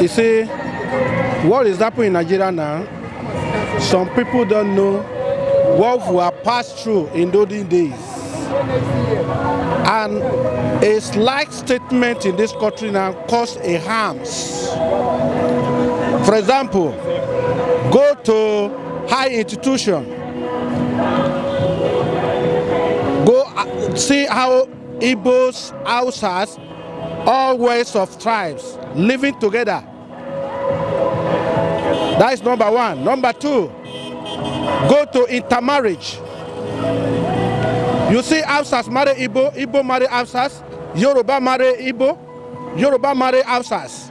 You see, what is happening in Nigeria now, some people don't know what we have passed through in those days. And a slight statement in this country now caused a harms. For example, go to high institution, go uh, see how Igbos, Hausas, all ways of tribes living together. That is number one. Number two, go to intermarriage. You see, Absas marry Igbo, Igbo marry Absas, Yoruba marry Igbo, Yoruba marry Absas.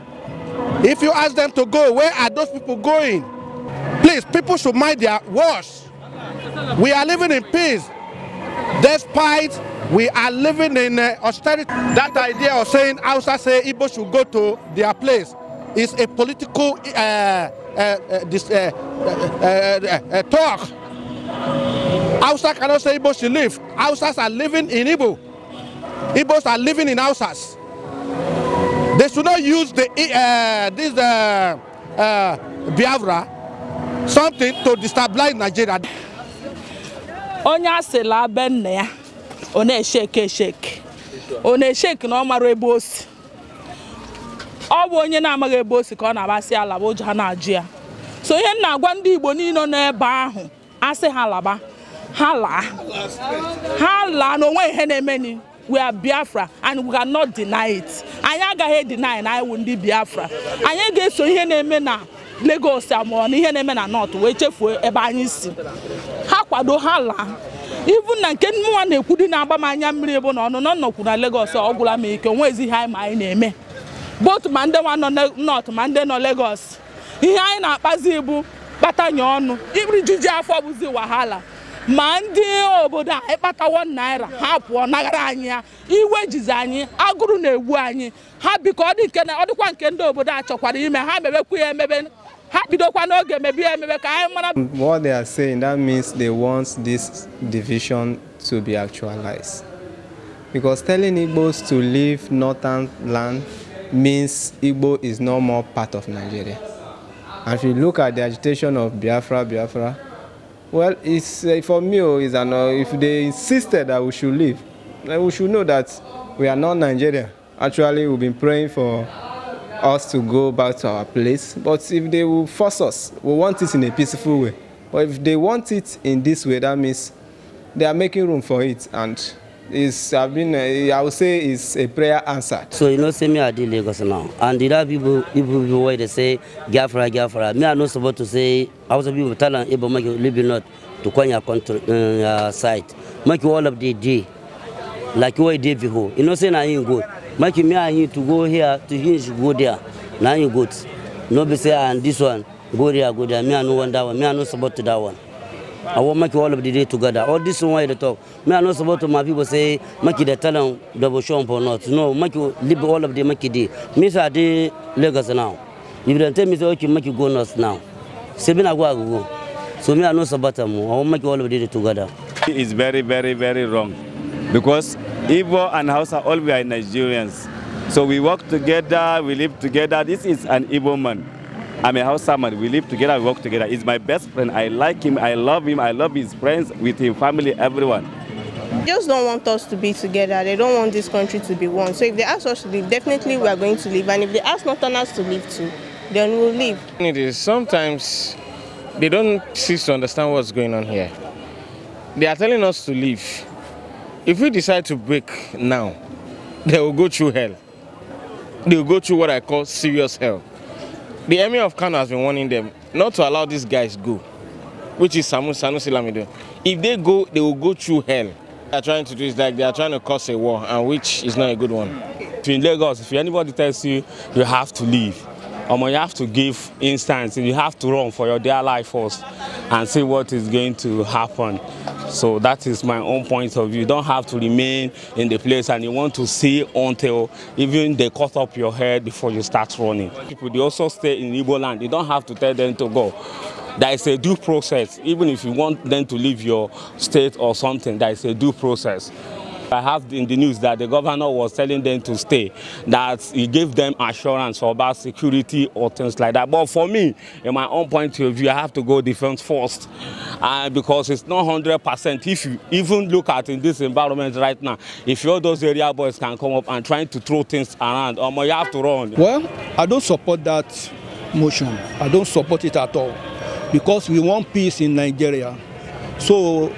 If you ask them to go, where are those people going? Please, people should mind their words. We are living in peace despite we are living in uh, austerity. That idea of saying Hausa say Igbo should go to their place is a political uh, uh, this, talk. Hausa cannot say Igbo should live. Hausas are living in Igbo. Igbos are living in Hausas. They should not use the this Biafra something to destabilize Nigeria. Onya se be nna ya ọ na echeke echeke. ọ na echeke na ọ mara ebe o si ọ bụ onye na-amaghị ebe o si ka ọ na-agbasị alaba ụjọ ha na-ajụ ya so ihe m na-agwa ndị Igbo niile nọ ebe ahụ asị ha laba ha laa ha laa na onwe ihe na-emeni we are Biafra and we not deny it anyị agaghị deny na anyị wụ ndị Biafra anyị ga-eso ihe na-eme na legos amụọ na ihe na-eme na North wee chefuo ebe anyị si ha kwado ha laa ibu na nke nwa na-ekwu dị na-agba m anya mmiri bụ na ọnụnọ nnọkwu na Lagos ọ gwụla m ike onwe ezi ihe anyị ma anyị na-eme bot ma ndị nwa nọ nọt ma ndị nọ legos ihe anyị na-akpazi bụ kpatanye ọnụ iriju afọ bụzi wahala ma ndị obodo a ịkpatawo naira ha pụọ naghara anyị ya iwe jizi anyị agụrụ na-egbu anyị ha biko ọ dịkwa nke ndị obodo a chọkwara ime ha mebekwa ya emebe ha what they are saying that means they want this division to be actualized because telling Igbos to leave northern land means Igbo is no more part of Nigeria. And if you look at the agitation of Biafra, Biafra, well, it's, uh, for me, oh, it's an, uh, if they insisted that we should leave, then we should know that we are not Nigeria. Actually, we've been praying for us to go back to our place. But if they will force us, we want it in a peaceful way. But if they want it in this way, that means they are making room for it. And it's, I mean, eh, I would say it's a prayer answered. So you know, say me, I did Lagos now. And the other people, people, people where they say, Gafra, Gafra. Me, I'm not supposed to say, I was a people tell them, Ibo, make you live not to come your country, uh, your site. Make you all of the day. Like you were day before. You know, say, I ain't good. make me and you to go here to him she go there now you good no be say and ah, this one go there go there me i no want that one me i no support to that one i want make all of the day together all this one you dey talk me i no support to my people say make the dey tell am double shop or not no make you leave all of the make day. me say i dey lagos now if they tell me say okay make you go north now say me na go i go go so me i no support them. i want make all of the day together. it's very very very wrong because Igbo and Hausa, all we are Nigerians. So we work together, we live together. This is an Igbo man. I'm a Hausa man. We live together, we work together. He's my best friend. I like him, I love him, I love his friends, with him, family, everyone. They just don't want us to be together. They don't want this country to be one. So if they ask us to leave, definitely we are going to leave. And if they ask not us to leave too, then we'll leave. It is sometimes they don't cease to understand what's going on here. They are telling us to leave. If we decide to break now, they will go through hell. They will go through what I call serious hell. The Emir of Kano has been warning them not to allow these guys go, which is Samu Sanusi Lamido. If they go, they will go through hell. they are trying to do is like they are trying to cause a war, and which is not a good one. in Lagos, if anybody tells you you have to leave, or you have to give instance, you have to run for your dear life first and see what is going to happen. So that is my own point of view. You don't have to remain in the place and you want to see until even they cut up your head before you start running. People, they also stay in Igbo land. You don't have to tell them to go. That is a due process. Even if you want them to leave your state or something, that is a due process. I have in the news that the governor was telling them to stay, that he gave them assurance about security or things like that. But for me, in my own point of view, I have to go defense first uh, because it's not 100%. If you even look at in this environment right now, if all those area boys can come up and trying to throw things around, um, you have to run. Well, I don't support that motion. I don't support it at all because we want peace in Nigeria. So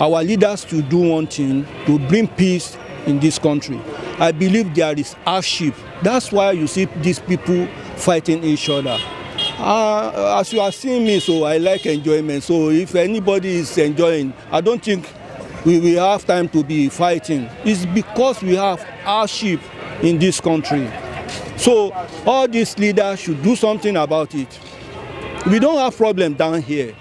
our leaders to do one thing to bring peace in this country. I believe there is hardship. That's why you see these people fighting each other. Uh, as you are seeing me, so I like enjoyment. So if anybody is enjoying, I don't think we will have time to be fighting. It's because we have hardship in this country. So all these leaders should do something about it. We don't have problem down here,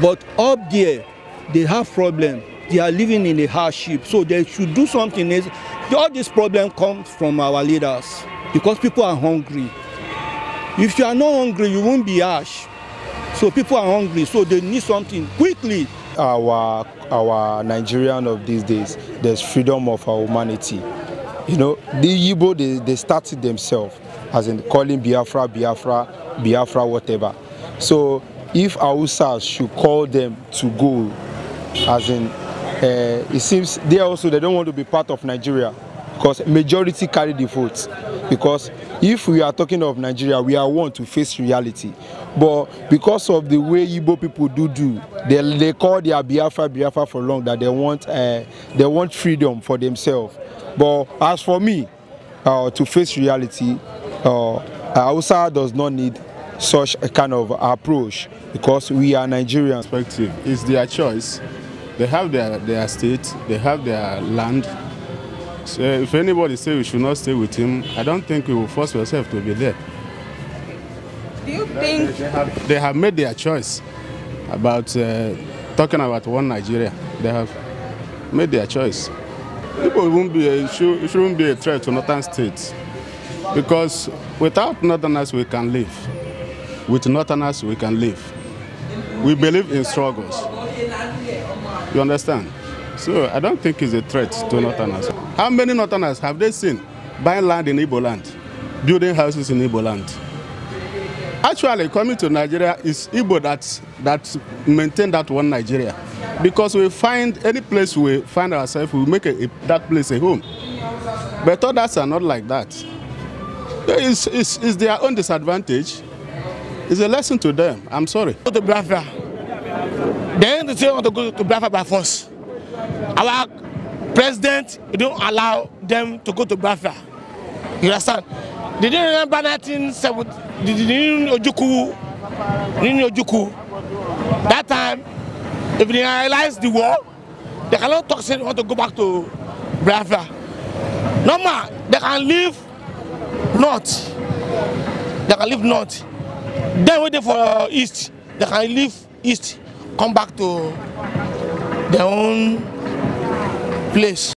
but up there, they have problem they are living in a hardship so they should do something else all this problem comes from our leaders because people are hungry if you are not hungry you won't be harsh so people are hungry so they need something quickly. our our nigerian of these days there's freedom of our humanity you know the igbo they they started themselves as in calling biafra biafra biafra whatever so if hausa should call them to go as in uh, it seems they also they don't want to be part of Nigeria because majority carry the vote because if we are talking of Nigeria we are one to face reality but because of the way Igbo people do do they, they call their Biafra Biafra for long that they want uh, they want freedom for themselves but as for me uh, to face reality uh, does not need such a kind of approach because we are Nigerians. Perspective. is their choice They have their, their state, they have their land. So if anybody say we should not stay with him, I don't think we will force ourselves to be there. Do you think... They, have, they have made their choice about uh, talking about one Nigeria. They have made their choice. People won't be a, should, shouldn't be a threat to northern states because without northerners we can live. With northerners we can live. We believe in struggles. You understand? So I don't think it's a threat to Northerners. How many Northerners have they seen buying land in Igbo land, building houses in Igbo land? Actually, coming to Nigeria is Igbo that, that maintain that one Nigeria. Because we find any place we find ourselves, we make a, a, that place a home. But others are not like that. It's, it's, it's their own disadvantage. It's a lesson to them. I'm sorry. The brother. They didn't say want to go to Biafra by force. Our president don't allow them to go to Biafra. You understand? Did you remember 1970, they didn't Ojuku, didn't Ojuku. That time, if they analyze the war, they cannot talk say they want to go back to Biafra. Normal, they can leave north. They can leave north. Then waiting for uh, east, they can leave east come back to their own place.